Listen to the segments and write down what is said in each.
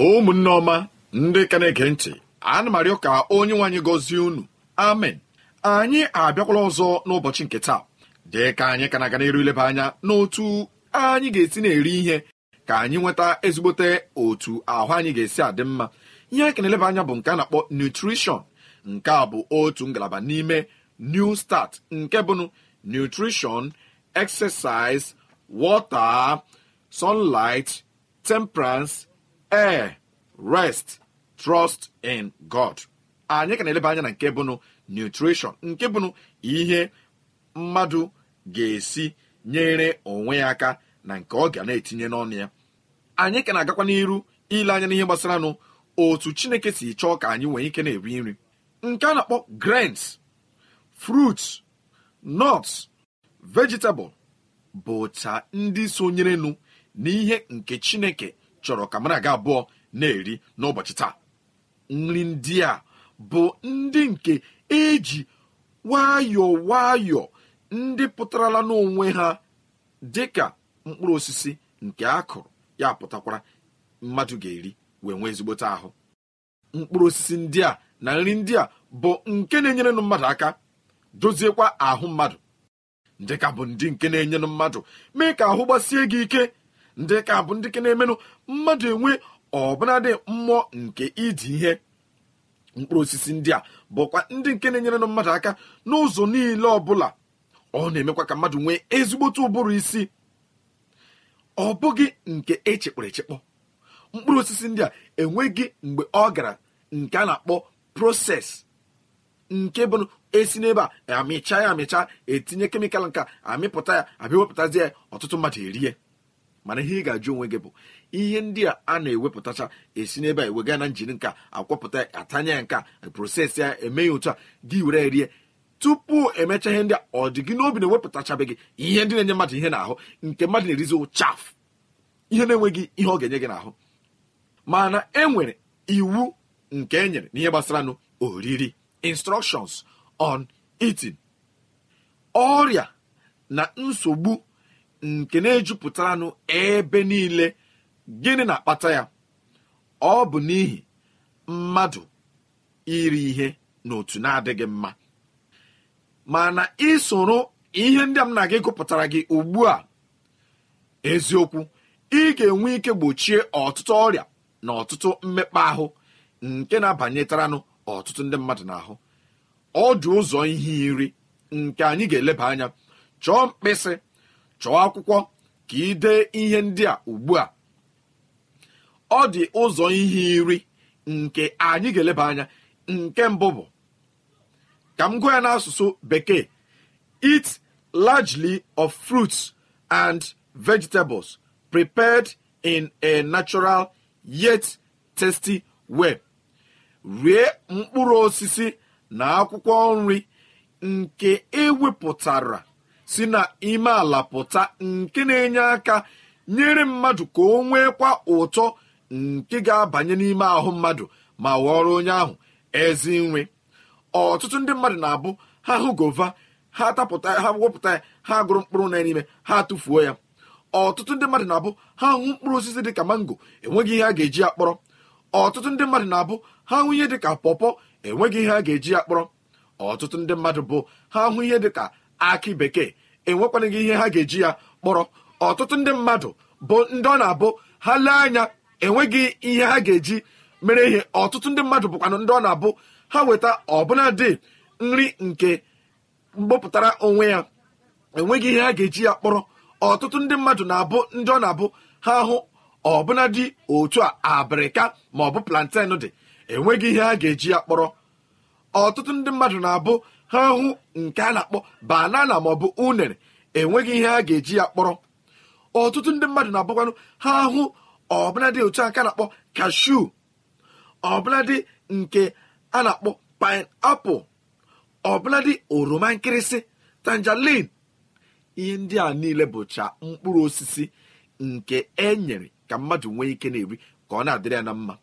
ụmụnne ọma ndị ka na-ege ntị ana m arịọ ka onye nwaanyị gọzie unu amen anyị abịakwala ọzọ n'ụbọchị nke taa dị ka anyị ka na-aga n'iru ileba anya n'otu anyị ga-esi na-eri ihe ka anyị nweta ezigbote otu ahụ anyị ga-esi adị mma ihe anyị kana na anya bụ nke a na-akpọ nutrishọn nke a bụ otu ngalaba n'ime new start nke bụnụ nutrishọn exercise wọta, sunlight temperance ee rest trust in god anyị ka na-eleba anya na nke bụnụ nutrition nke bụnụ ihe mmadụ ga-esi nyere onwe ya aka na nke ọ ga na-etinye n'ọnụ ya anyị ka na-agakwa n'iru ile anya n'ihe gbasara nụ otu chineke si chọọ ka anyị nwee ike na-eri nri nke a na-akpọ grains fruits nuts vegetable bụcha ndị sonyerenụ n'ihe nke chineke chọrọ ka mara abụọ na-eri n'ụbọchị taa nri ndị a bụ ndị nke eji nwayọọ nwayọọ ndị pụtarala n'onwe ha dị ka mkpụrụ osisi nke akụrụ ya pụtakwara mmadụ ga-eri wee nwee ezigbote ahụ mkpụrụ osisi ndị a na nri ndị a bụ nke na-enyerenụ mmadụ aka doziekwa ahụ mmadụ dịka bụ ndị nke na-enyenụ mmadụ mee ka ahụ gbasie gị ike ndị ka bụ ndị ke na-emenụ mmadụ enwe ọbụnadị mmụọ nke idi ihe mkpụrụ osisi ndị a bụkwa ndị nke na-enyerenụ mmadụ aka n'ụzọ niile ọbụla ọ na-emekwa ka mmadụ nwee ezigbote ụbụrụ isi ọ bụghị nke echekpọrọ echekpọ mkpụrụ osisi ndị a enweghị mgbe ọ gara nke a na-akpọ proses nke bụ esi n'ebe a amịcha ya amịcha etinye kemịkal nka amịpụta ya abịa ya ọtụtụ mmadụ erie mana ihe ị ga-ajụ onwe gị bụ ihe ndị a a na-ewepụtacha esi n'ebe a ewega na njiri nka akwọpụta atanya ya nka prosesị ya emeghị otu a gị were rie tupu emecha ihe ndị a ọ dị gị n'obi na-ewepụtachabeghị ihe ndị na-enye mmadụ ihe na-ahụ nke mmadụ na-erizi chafụ ihe na-enweghị ihe ọ ga-enye gị n'ahụ mana e nwere iwu nke e nyere n'ihe gbasara nụ oriri instructions on itin ọrịa na nsogbu nke na-ejupụtaranụ ebe niile gịnị na-akpata ya ọ bụ n'ihi mmadụ iri ihe n'otu na-adịghị mma mana isoro ihe ndị a m na gị gụpụtara gị ugbu a eziokwu ị ga-enwe ike gbochie ọtụtụ ọrịa na ọtụtụ mmekpa ahụ nke na abanyetaranụ ọtụtụ ndị mmadụ n'ahụ ọ dị ụzọ ihe iri nke anyị ga-eleba anya chọọ mkpịsị chọọ akwụkwọ ka ị dee ihe ndị a ugbu a ọ dị ụzọ ihe iri nke anyị ga-eleba anya nke mbụ bụ ka m gụọ ya n'asụsụ bekee eat largely of fruits and vegetables prepared in a natural yet tasty way. rie mkpụrụ osisi na akwụkwọ nri nke ewepụtara si na ime ala pụta nke na-enye aka nyere mmadụ ka o kwa ụtọ nke ga-abanye n'ime ahụ mmadụ ma ghọrọ onye ahụ ezi nwe ọtụtụ ndị mmadụ na-abụ ha hụ gova ha tapụta ha wepụta ya ha gụrụ mkpụrụ na n'ime ha tụfuo ya ọtụtụ ndị mmadụ na-abụ ha hụ mkpụrụ osisi dị ka mango enweghị ihe a ga-eji ya kpọrọ ọtụtụ ndị mmadụ na-abụ ha hụ ihe dị ka pọpọ enweghị ihe a ga-eji ya kpọrọ ọtụtụ ndị mmadụ bụ ha hụ ihe dị ka akị bekee enwekwana gị ihe ha ga-eji ya kpọrọ ọtụtụ ndị mmadụ bụ ndị ọ na-abụ ha lee anya enweghị ihe ha ga-eji mere ihe ọtụtụ ndị mmadụ bụkwanụ ndị ọ na-abụ ha weta ọbụnadi nri nke mgbopụtara onwe ya enweghị ihe ha ga-eji ya kpọrọ ọtụtụ ndị mmadụ na-abụ ndị ọ na-abụ ha hụ dị otu a abịrịka ma ọ bụ planten dị enweghị ihe ha ga-eji ya kpọrọ ọtụtụ ndị mmadụ na-abụ ha hụ nke a na-akpọ banana maọbụ unere enweghị ihe a ga-eji ya kpọrọ ọtụtụ ndị mmadụ na-abụkwanụ ha hụ ọbụladị otu aka na-akpọ kashu ọbụladị nke a na-akpọ painapụl ọbụladị oroma nkịrịsị tangerine ihe ndị a niile bụcha mkpụrụ osisi nke e nyere ka mmadụ nwee ike na-eri ka ọ na-adịrị ya na mma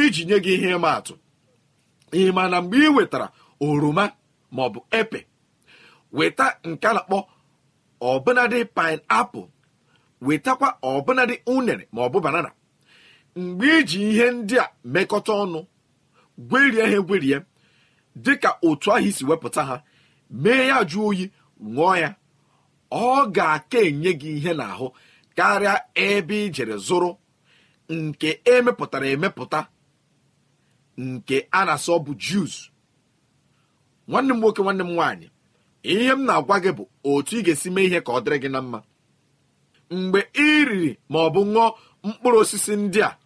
iji nye gị ihe ịma atụ ị ma na mgbe ị wetara oroma maọbụ epe weta nke a na-akpọ ọbụnadị painapụl wetakwa ọbụnadị unere maọbụ banana mgbe iji ihe ndị a mekọta ọnụ gwerie ha egwerie dịka otu ahụ isi wepụta ha mee ya jụọ oyi ṅụọ ya ọ ga-aka enye gị ihe n'ahụ karịa ebe ijere zụrụ nke emepụtara emepụta nke a na-asọ bụ juice nwanne m nwoke nwanne m nwaanyị ihe m na-agwa gị bụ otu ị ga-esi mee ihe ka ọ dịrị gị na mma mgbe ị riri ma ọ bụ ṅụọ mkpụrụ osisi ndị a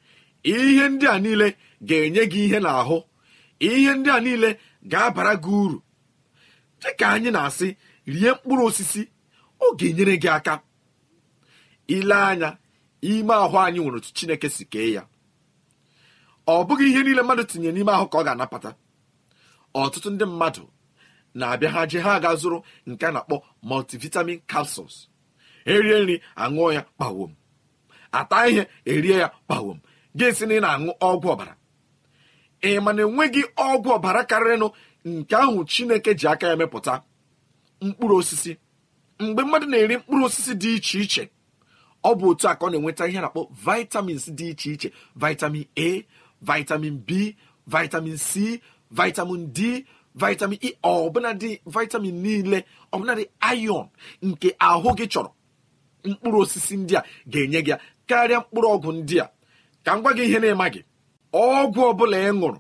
ihe ndị a niile ga-enye gị ihe n'ahụ ihe ndị a niile ga-abara gị uru dịka anyị na-asị rie mkpụrụ osisi ọ ga-enyere gị aka ile anya ime ahụ anyị nwere otu chineke si kee ya ọ bụghị ihe niile mmadụ tinye n'ime ahụ ka ọ ga-anapata ọtụtụ ndị mmadụ na-abịa ha je ha aga zụrụ nke a na-akpọ multivitamin capsules erie nri aṅụọ ya kpawom ata ihe erie ya kpawom gị na ị na-aṅụ ọgwụ ọbara ị ma na enweghị ọgwụ ọbara karịrịnụ nke ahụ chineke ji aka ya mepụta mkpụrụ osisi mgbe mmadụ na-eri mkpụrụ osisi dị iche iche ọ bụ otu aka ọ na-enweta ihe na-akpọ vitamins dị iche iche vitamin a vitamin b vitamin c vitamin d vitamin e ọbụnadị vitamin niile ọbụnadị iron nke ahụ gị chọrọ mkpụrụ osisi ndị a ga-enye gị karịa mkpụrụ ọgwụ ndị a ka m gwa gị ihe na-ema gị ọgwụ ọbụla ị ṅụrụ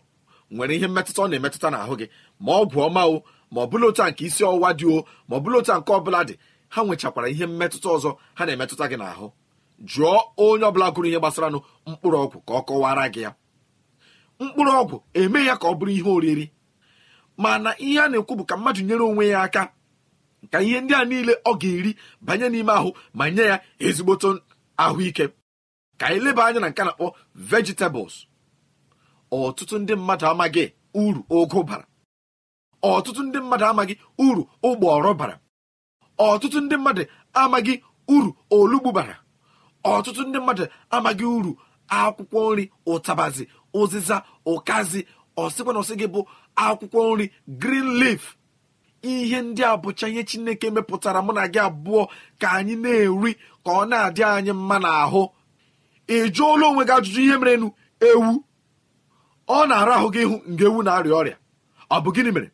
nwere ihe mmetụta ọ na-emetụta n'ahụ gị ma ọgwụ ọma o ma ọ bụla otu nke isi ọwụwa dị o ma ọ bụla otu nke ọbụla dị ha nwechakwara ihe mmetụta ọzọ ha na-emetụta gị n'ahụ jụọ onye ọbụla gụrụ ihe gbasaranụ mkpụrụ ọgwụ ka ọ kọwara gị ya mkpụrụ ọgwụ eme ya ka ọ bụrụ ihe oriri mana ihe a na-ekwu bụ ka mmadụ nyere onwe ya aka ka ihe ndị a niile ọ ga-eri banye n'ime ahụ ma nye ya ezigboto ahụike ka anyị leba anya na nke na-akpọ vegetables ọtụtụ ndị mmadụ amaghị uru ụgụ bara ọtụtụ ndị mmadụ amaghị uru ụgbọrọ bara ọtụtụ ndị mmadụ amaghị uru olugbu bara ọtụtụ ndị mmadụ amaghị uru akwụkwọ nri ụtabazi ụzịza ụkazi ọsịkwa na ọsị gị bụ akwụkwọ nri green leaf ihe ndị a bụcha ihe chineke mepụtara mụ na gị abụọ ka anyị na-eri ka ọ na-adị anyị mma n'ahụ ị jụọla onwe gị ajụjụ ihe mere merenu ewu ọ na-ara ahụ gị ịhụ nga ewu na-arịa ọrịa ọ bụ gịnị mere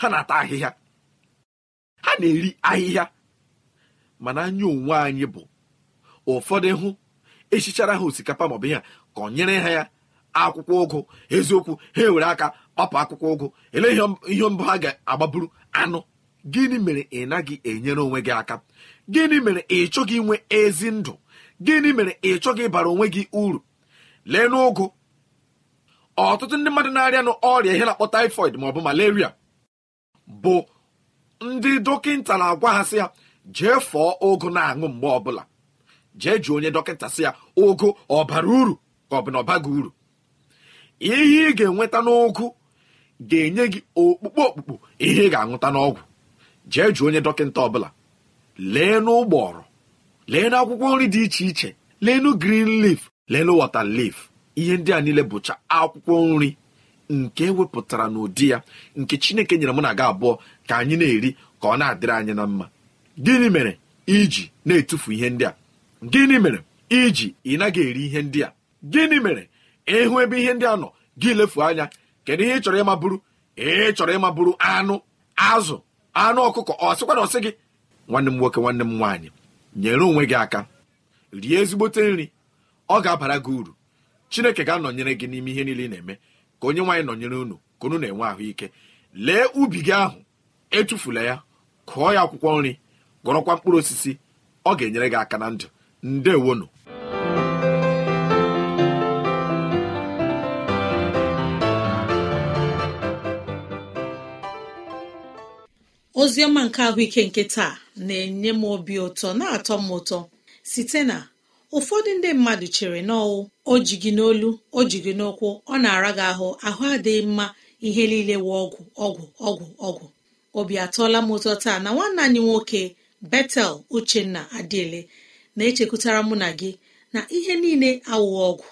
ha na-ata ahịhịa ha na-eri ahịhịa mana anya onwe anyị bụ ụfọdụ hụ echichara ha osikapa maọbụ ihe ka ọ nyere ha ya akwụkwọ ụgụ eziokwu ha ewere aka kpapụ akwụkwọ ụgụ ele ihe mbụ ha ga-agbaburu anụ gịnị mere ị naghị enyere onwe gị aka gịnị mere ị chọghị inwe ezi ndụ gịnị mere ị chọghị ịbara onwe gị uru lee n'ụgụ ọtụtụ ndị mmadụ na-arịa na ọrịa ihe na-akpọ taịfọid maọbụ malaria bụ ndị dọkịta na-agwa ha sị ya jee fọọ ụgụ na-aṅụ mgbe ọbụla jee ji onye dọkịta sị ya ụgụ ọ bara uru ka ọ bụ na ọ baghị uru ihe ị ga-enweta n'ụgụ ga-enye gị okpukpe okpukpo ihe ị ga-aṅụta n'ọgwụ jee jụọ onye dọkịta ọbụla lee n'ụgbọrọ lee n'akwụkwọ nri dị iche iche leenụ grin lif leenụ wọta lif ihe ndị a niile bụcha akwụkwọ nri nke wepụtara n'ụdị ya nke chineke nyere mụ na aga abụọ ka anyị na-eri ka ọ na-adịrị anyị na mma gịnị mere iji na-etufu ihe ndị a gịnị mere iji ị naghị eri ihe ndị a gịnị mere ịhụ ebe ihe ndị a nọ gị lefu anya kedu ihe ị chọrọ ịma bụrụ ị chọrọ ịma bụrụ anụ azụ anụ ọkụkọ ọ sịkwa na ọsị gị nwanne m nwoke nwanne m nwaanyị nyere onwe gị aka rie ezigbote nri ọ ga-abara gị uru chineke ga-anọnyere gị n'ime ihe niile ị na-eme ka onye nwaanyị nọnyere unu ka unu na-enwe ahụike lee ubi gị ahụ etufula ya kụọ ya akwụkwọ nri gụrọkwa mkpụrụ osisi ọ ga-enyere gị aka na ndụ ndewonu oziọma nke ahụike nke taa na-enye m obi ụtọ na-atọ m ụtọ site na ụfọdụ ndị mmadụ chere n'ọwụ o ji gị n'olu o ji gị n'ụkwụ ọ na-ara gị ahụ ahụ adịghị mma ihe niile wụ ọgwụ ọgwụ ọgwụ ọgwụ obi atọọla m ụtọ taa na nwanne anyị nwoke betel uchenna adịele na-echekwutara mụ na gị na ihe niile awụghị ọgwụ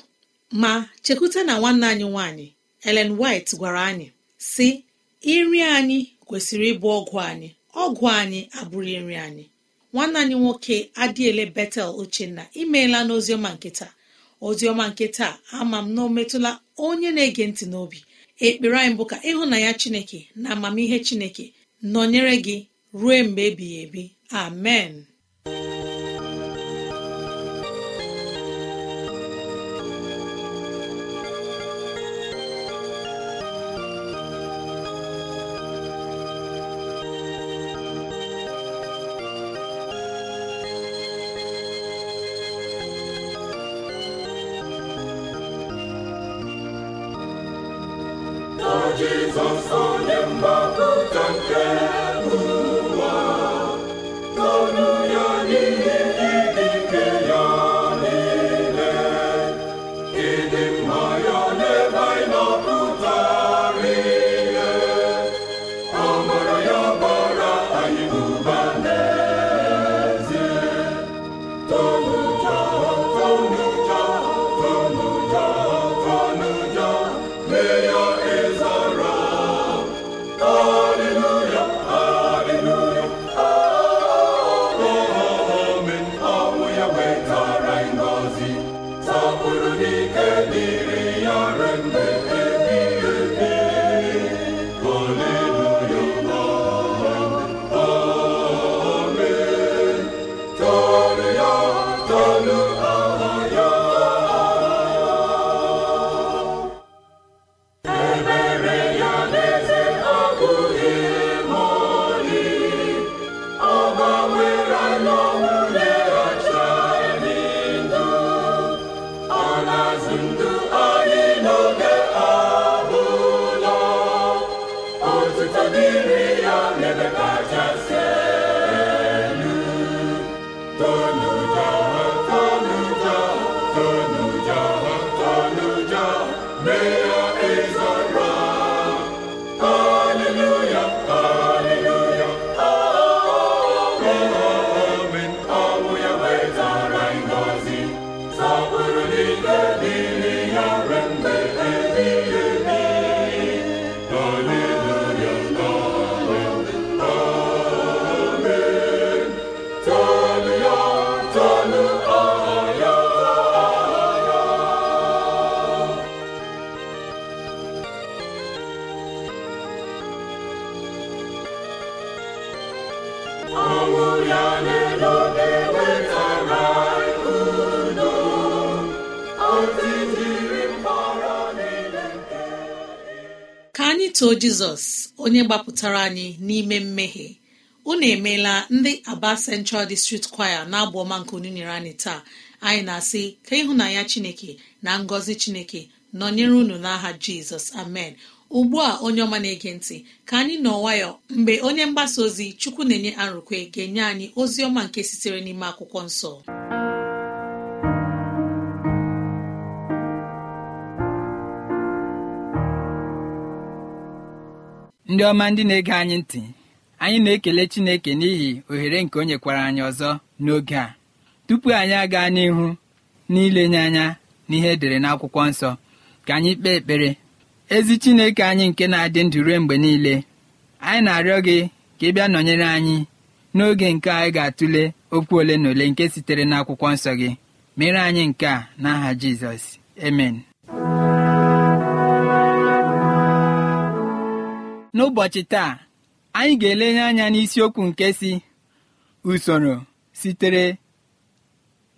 ma chekwuta na nwanne anyị nwaanyị elen white gwara anyị si iri anyị kwesịrị ịbụ ọgwụ anyị ọgwụ anyị abụghị nri anyị nwanne anyị nwoke adịele betel uchenna imeela n'oziọma nkịta oziọma nkịta ama m na o metụla onye na-ege ntị n'obi ekpere anyị bụ ka ya chineke na amamihe chineke nọnyere gị ruo mgbe ebighị ebi amen Jizọs onye mgbapụta nke iso jizọs onye gbapụtara anyị n'ime mmehie unu emeela ndị aba central district choir na abụ ọma nke onyinye nyere anyị taa anyị na-asị ka ịhụnanya chineke na ngọzi chineke nọnyere unu n'aha jizọs amen ugbu a onye ọma na-ege ntị ka anyị nọ nwayọ mgbe onye mgbasa ozi chukwu na-enye arụkwe ga-enye anyị ozi ọma nke sitere n'ime akwụkwọ nsọ ndị ọma ndị na-ege anyị ntị anyị na-ekele chineke n'ihi ohere nke o nyekwara anyị ọzọ n'oge a tupu anyị aga n'ihu n'ilenye anya n'ihe edere n'akwụkwọ nsọ ka anyị kpee ekpere ezi chineke anyị nke na-adị ndụ ruo mgbe niile anyị na-arịọ gị ka ị bịa nọnyere anyị n'oge nke anyị ga-atụle okwu ole na ole nke sitere n'akwụkwọ nsọ gị mere anyị nke a n'aha Jizọs amen n'ụbọchị taa anyị ga-elenye anya n'isiokwu nke si usoro sitere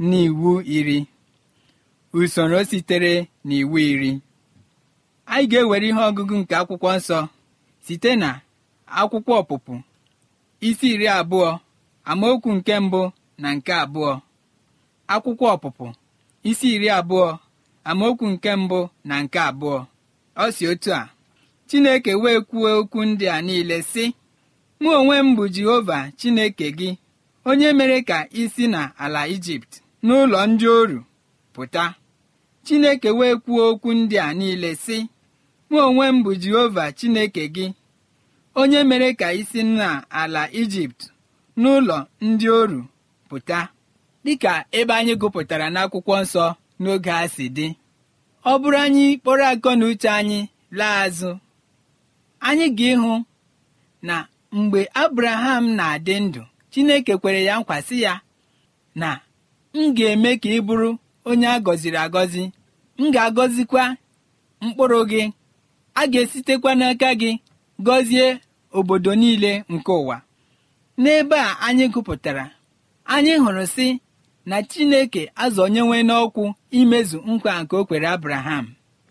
n'iwu iri usoro sitere n'iwu iri anyị ga-ewere ihe ọgụgụ nke akwụkwọ nsọ site na akwụkwọ ọpụpụ isi iri abụọ amaokwu nke mbụ na nke abụọ akwụkwọ ọpụpụ isi iri abụọ amaokwu nke mbụ na nke abụọ ọ si otu a chineke wee kwuo okwu ndị a niile sị mụ onwe m bụ jehova chineke gị onye mere ka ị si na ala ijipt n'ụlọ ndị oru pụta chineke wee kwuo okwu ndị a niile sị mụ onwe m bụ jehova chineke gị onye mere ka isi si na ala ijipt n'ụlọ ndị oru pụta dịka ebe anyị gụpụtara n'akwụkwọ nsọ n'oge a si dị ọ bụrụ anyị kpọrọ akọ na uche anyị laa azụ anyị ga-ịhụ na mgbe abraham na-adị ndụ chineke kwere ya nkwasị ya na m ga-eme ka ị bụrụ onye a gọziri agọzi m ga-agọzikwa mkpụrụ gị a ga-esitekwa n'aka gị gọzie obodo niile nke ụwa n'ebe a anyị gụpụtara anyị hụrụ si na chineke azọnyewe n'ọkwụ imezu nkwa nke o kwere abraham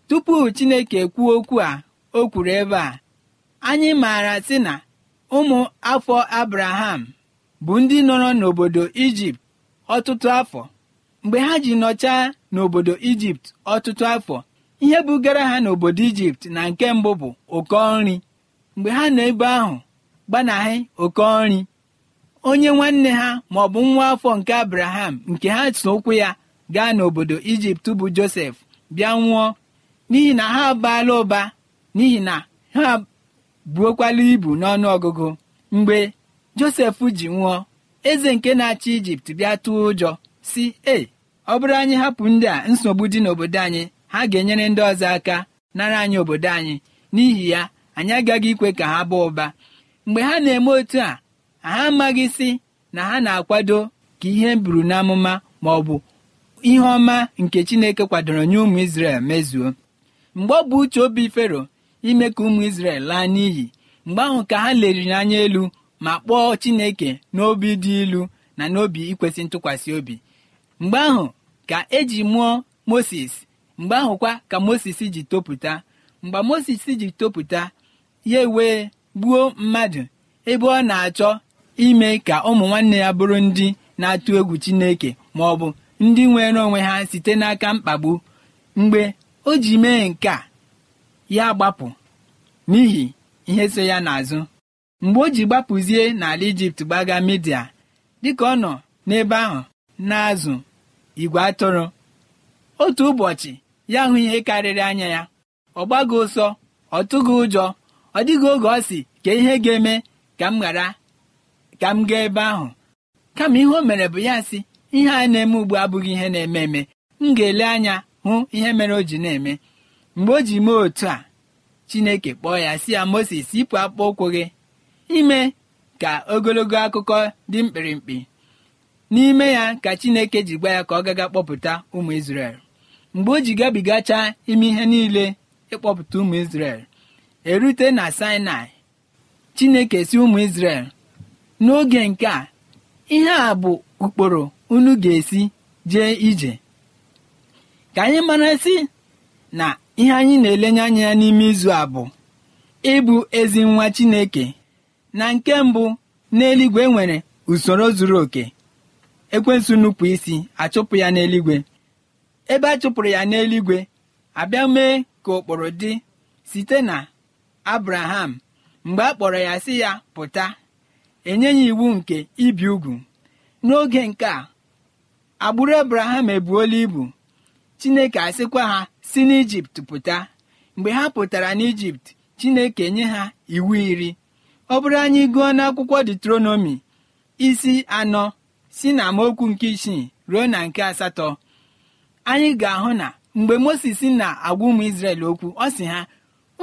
tupu chineke kwuo okwu a o kwuru ebe a anyị maara sị na ụmụ afọ abraham bụ ndị nọrọ n'obodo ijipt ọtụtụ afọ mgbe ha ji nọchaa n'obodo ijipt ọtụtụ afọ ihe bugara ha n'obodo ijipt na nke mbụ bụ okonri nri mgbe ha nọ ebe ahụ gbanahị okonri nri onye nwanne ha ma ọ bụ nwa afọ nke abraham nke ha so ụkwụ ya gaa n'obodo ijipt bụ josef bịa nwụọ n'ihi na ha abaala ụba n'ihi na ha buokwala ibu n'ọnụ ọgụgụ mgbe josef ji nwụọ eze nke na-achị ijipt bịa tụọ ụjọ si e ọ bụrụ anyị hapụ ndị a nsogbu dị n'obodo anyị ha ga-enyere ndị ọzọ aka nara anyị obodo anyị n'ihi ya anyị agaghị ikwe ka ha baa ụba mgbe ha na-eme otu a ha amaghị si na ha na-akwado ka ihe buru n'amụma ma ọ bụ ihe ọma nke chineke kwadoro nye ụmụ isrel mezuo mgbe ọ bụ uche obi fero ime ka ụmụ isrel laa n'iyi mgbe ahụ ka ha leriri anya elu ma kpọọ Chineke n'obi dị ilu na n'obi ikwesị ntụkwasị obi mgbe ahụ ka eji mụọ Moses mgbe ahụ kwa ka Moses ji topụta mgbe Moses ji topụta ya wee gbuo mmadụ ebe ọ na-achọ ime ka ụmụ nwanne ya bụrụ ndị na-atụ egwu Chineke ma ọ bụ ndị nwere onwe ha site n'aka mkpagbu mgbe o ji mee nke a ya gbapụ n'ihi ihe so ya n'azụ mgbe o ji gbapụzie n'ala ijipt gbaga midia dịka ọ nọ n'ebe ahụ na-azụ igwe atụrụ otu ụbọchị ya hụ ihe karịrị anya ya ọ gbago ụsọ ọ tụghị ụjọ ọ dịghị oge ọ si ka ihe ga-eme ka m ghara ka m gaa ebe ahụ kama ihe o mere bụ ya sị ihe a na-eme ugbu abụghị ihe na-eme eme m ga-ele anya hụ ihe mere o ji na-eme mgbe o ji mee otu a chineke kpọọ ya si ya moses yipụ akpụkpọ ụkwụ gị ime ka ogologo akụkọ dị mkpirikpi n'ime ya ka chineke ji gwa ya ka ọ gaga kpọpụta ụmụ isrel mgbe o ji gabigachaa ime ihe niile ịkpọpụta ụmụ isrel erute na sinai chineke si ụmụ isrel n'oge nke a ihe a bụ ụkpụrụ unu ga-esi jee ije ka anyị mara si na ihe anyị na-elenye anya ya n'ime izu a bụ ịbụ ezi nwa chineke na nke mbụ n'eluigwe nwere usoro zuru oke ekwensu nupụ isi achụpụ ya n'eluigwe ebe a chụpụrụ ya n'eluigwe abịa mee ka ụkpụrụ dị site na abraham mgbe a kpọrọ ya sị ya pụta enye ya iwu nke ibi ugwu n'oge nke a agbụrụ abraham ebuola ibu chineke asịkwa ha si n'ijipt pụta mgbe ha pụtara n'ijipt chineke nye ha iwu iri ọ bụrụ anyị gụọ n'akwụkwọ detronomi isi anọ si na amaokwu nke isii ruo na nke asatọ anyị ga-ahụ na mgbe moses na-agwa ụmụ isrel okwu ọ sị ha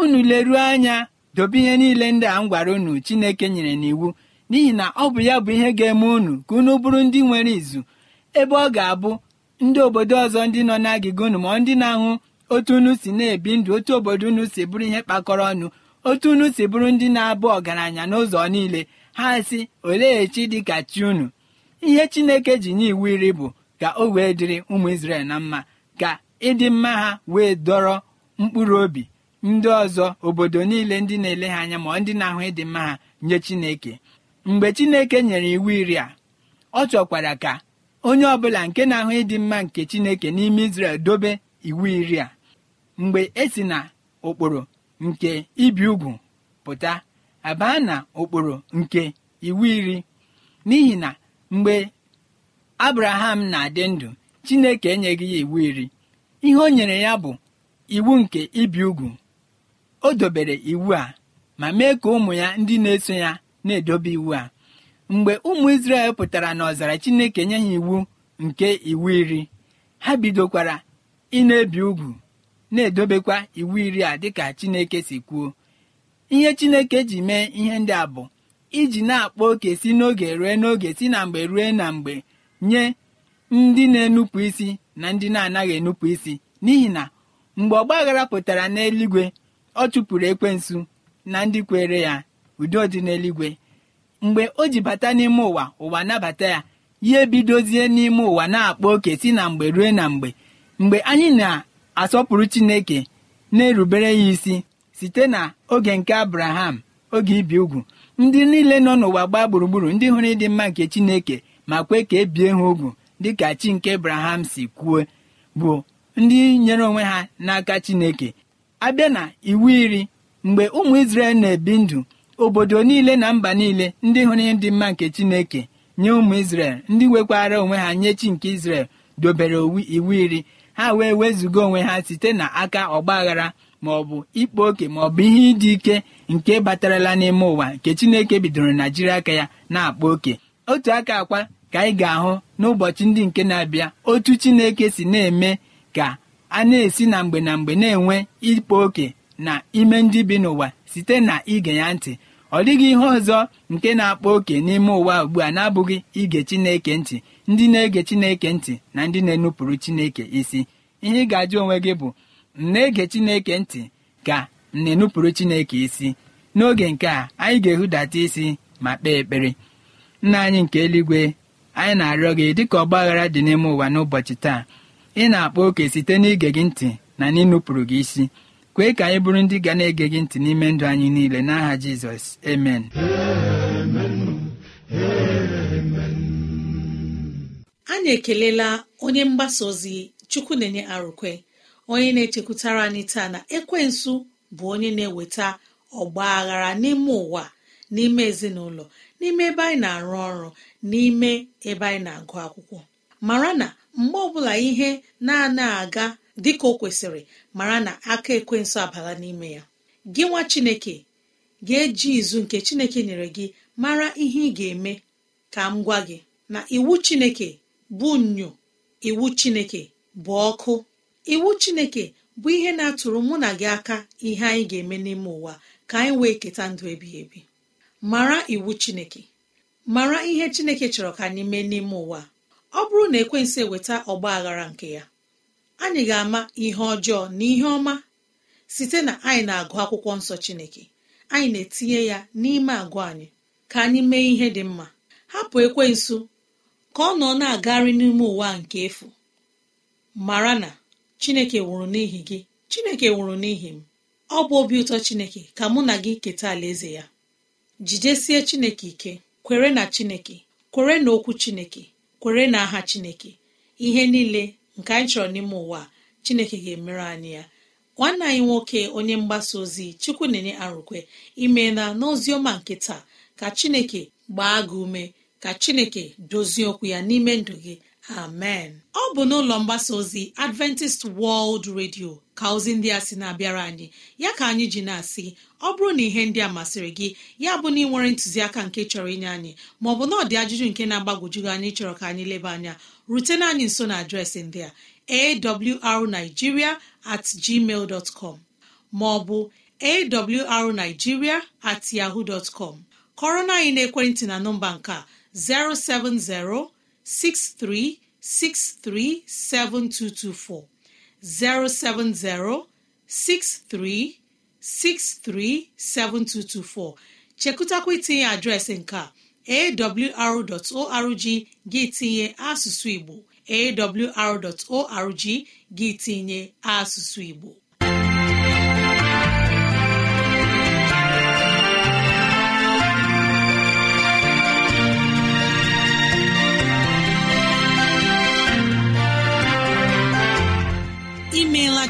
unu leruo anya dobe ihe niile ndị a m gwara unu chineke nyere n'iwu n'ihi na ọ bụ ya bụ ihe ga-eme unu ka unu bụrụ ndị nwere izu ebe ọ ga-abụ ndị obodo ọzọ ndị nọ n'agịga unu ma ndị na-ahụ otu unu si na-ebi ndụ otu obodo unu si bụrụ ihe kpakọrọ ọnụ otu unu si bụrụ ndị na-abụ ọgaranya n'ụzọ niile ha si olee chi dịka chi unu ihe chineke ji nye iwu iri bụ ka o wee dịrị ụmụ isrel na mma ka ịdị mma ha wee dọrọ mkpụrụ obi ndị ọzọ obodo niile ndị na-ele ha anya ma ndị na-ahụ ịdị mma ha nye chineke mgbe chineke nyere iwu iri a ọ chọkwara ka onye ọbụla nke na-ahụ ịdị mma nke chineke n'ime isrel dobe iwu iri a mgbe e si na okporo nke ibi ugwu pụta abaa na ụkpụrụ nke iwu iri n'ihi na mgbe abraham na-adị ndụ chineke enyeghị ya iwu iri ihe o nyere ya bụ iwu nke ibi ugwu o dobere iwu a ma mee ka ụmụ ya ndị na-eso ya na-edobe iwu a mgbe ụmụ isrel pụtara n'ọzara chineke nye ha iwu nke iwu iri ha bidokwara ị na-ebi ugwu na-edobekwa iwu iri a dịka Chineke si kwuo ihe Chineke ji mee ihe ndị a bụ iji na akpọ oke si n'oge rue n'oge si na mgbe rue na mgbe nye ndị na-enupụ isi na ndị na-anaghị enupụ isi n'ihi na mgbe ọgbaghara pụtara n'eluigwe ọ chụpụrụ ekwensu na ndị kwere ya udo dị n'eluigwe mgbe o ji bata n'ime ụwa ụwa nabata ya ya ebidozie n'ime ụwa na akpọ oke si na mgbe rue na mgbe mgbe anyị na asọpụrụ chineke na-erubere ya isi site na oge nke abraham oge ibi ugwu ndị niile nọ n'ụwa gbaa gburugburu ndị hụrụ ịdị mma nke chineke ma kwe ka ebie ha ugwu dịka chi nke abraham si kwuo bụ ndị nyere onwe ha n'aka chineke abịa na iwu iri mgbe ụmụ isrel na-ebi ndụ obodo niile na mba niile ndị hụrụ ịdị mma nke chineke nye ụmụ isrel ndị nwekwara onwe ha nye chi nke isrel dobere iwu iri ha wee wezụga onwe ha site na aka ọgbaghara ma ọ bụ ikpo oke ma ọ bụ ihe ịdị ike nke batarala n'ime ụwa nke chineke bidoro na jiri aka ya na-akpa oke otu aka akwa ka anyị ga-ahụ n'ụbọchị ndị nke na-abịa otu chineke si na-eme ka a na-esi na mgbe na mgbe na-enwe ikpo oke na ime ndị bi n'ụwa site na ige ya ntị ọ dịghị ihe ọzọ nke na-akpa oke n'ime ụwa ugbu a na-abụghị ige Chineke ntị ndị na-ege Chineke ntị na ndị na-enupụrụ Chineke isi ihe ị ga-ajụ onwe gị bụ m na-ege Chineke ntị ka na-enupụrụ Chineke isi n'oge nke a anyị ga-ehudata isi ma kpee ekpere nna anyị nke eluigwe anyị na-arịọ gị dịka ọgbaghara dị n'ime ụwa n'ụbọchị taa ị na-akpa oke site n'ige gị ntị na n'ịnụpụrụ gị isi kwee ka anyị bụrụ ndị ga na-ege gị ntị n'ime ndụ anyị niile n'aha jizọs amen anyị ekelela onye mgbasa ozi chukwu na-enye arụkwe onye na-echekwutara anyị taa na ekwensu bụ onye na-eweta ọgba aghara n'ime ụwa n'ime ezinụlọ n'ime ebe anyị na-arụ ọrụ n'ime ebe anyị na-agụ akwụkwọ mara na mgbe ọbụla ihe na-ana aga dịka o kwesịrị mara na aka ekwensụ abala n'ime ya gị nwa chineke ga-eji izu nke chineke nyere gị mara ihe ị ga-eme ka m gwa gị na iwu chineke bụ nnyo iwu chineke bụ ọkụ iwu chineke bụ ihe na-atụrụ mụ na gị aka ihe anyị ga-eme n'ime ụwa ka anyị wee keta ndụ ebighị ebi mara iwu chineke mara ihe chineke chọrọ ka anyị mee n'ime ụwa ọ bụrụ na ekwensị eweta ọgba aghara nke ya anyị ga-ama ihe ọjọọ na ihe ọma site na anyị na-agụ akwụkwọ nsọ Chineke anyị na-etinye ya n'ime agụ anyị ka anyị mee ihe dị mma hapụ ekwensu ka ọ nọ na-agagharị n'ime ụwa nke efu mara na Chineke nwụrụ n'ihi gị Chineke nwụrụ n'ihi m ọ bụ obi ụtọ Chineke ka mụ na gị keta alaeze ya jidesie Chineke ike kwere na Chineke kwere na okwu Chineke kwere na aha Chineke ihe niile nke anyị chọrọ n'ime ụwa chineke ga-emere anyị ya nwanne anyị nwoke onye mgbasa ozi chukwu na-enye arụkwe imeela n'ozi ọma nke taa ka chineke gbaa gị ume ka chineke dozie okwu ya n'ime ndụ gị amen ọ bụ n'ụlọ mgbasa ozi adventist world radio ka ozi ndị a sị na-abịara anyị ya ka anyị ji na-asị ọ bụrụ na ihe ndị a masịrị gị ya bụ na ị nwere ntụziaka nke chọrọ inye anyị maọbụ na ọ dị ajụjụ nke na-agbagwojugị anyị chọrọ ka anyị leba anya rutena anyị nso na adreesị ndị a awrnigeria at com maọbụ awrnigeria at com kọrọ na anyị na ekwentị na nọmba nke a 070 63637224 07063637224 chekụtakwa itinye adreesị nke a gị tinye asụsụ Igbo arorg gị tinye asụsụ Igbo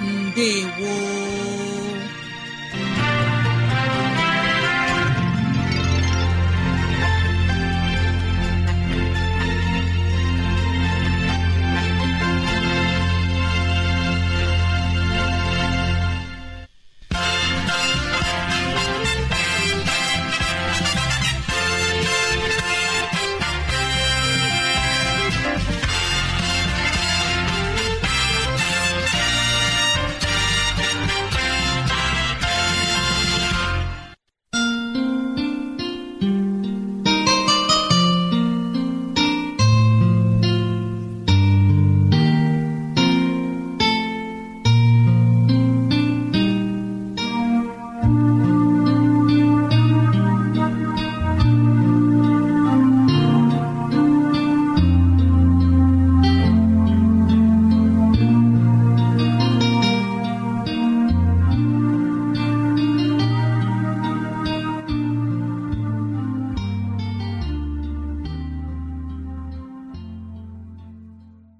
Ndewo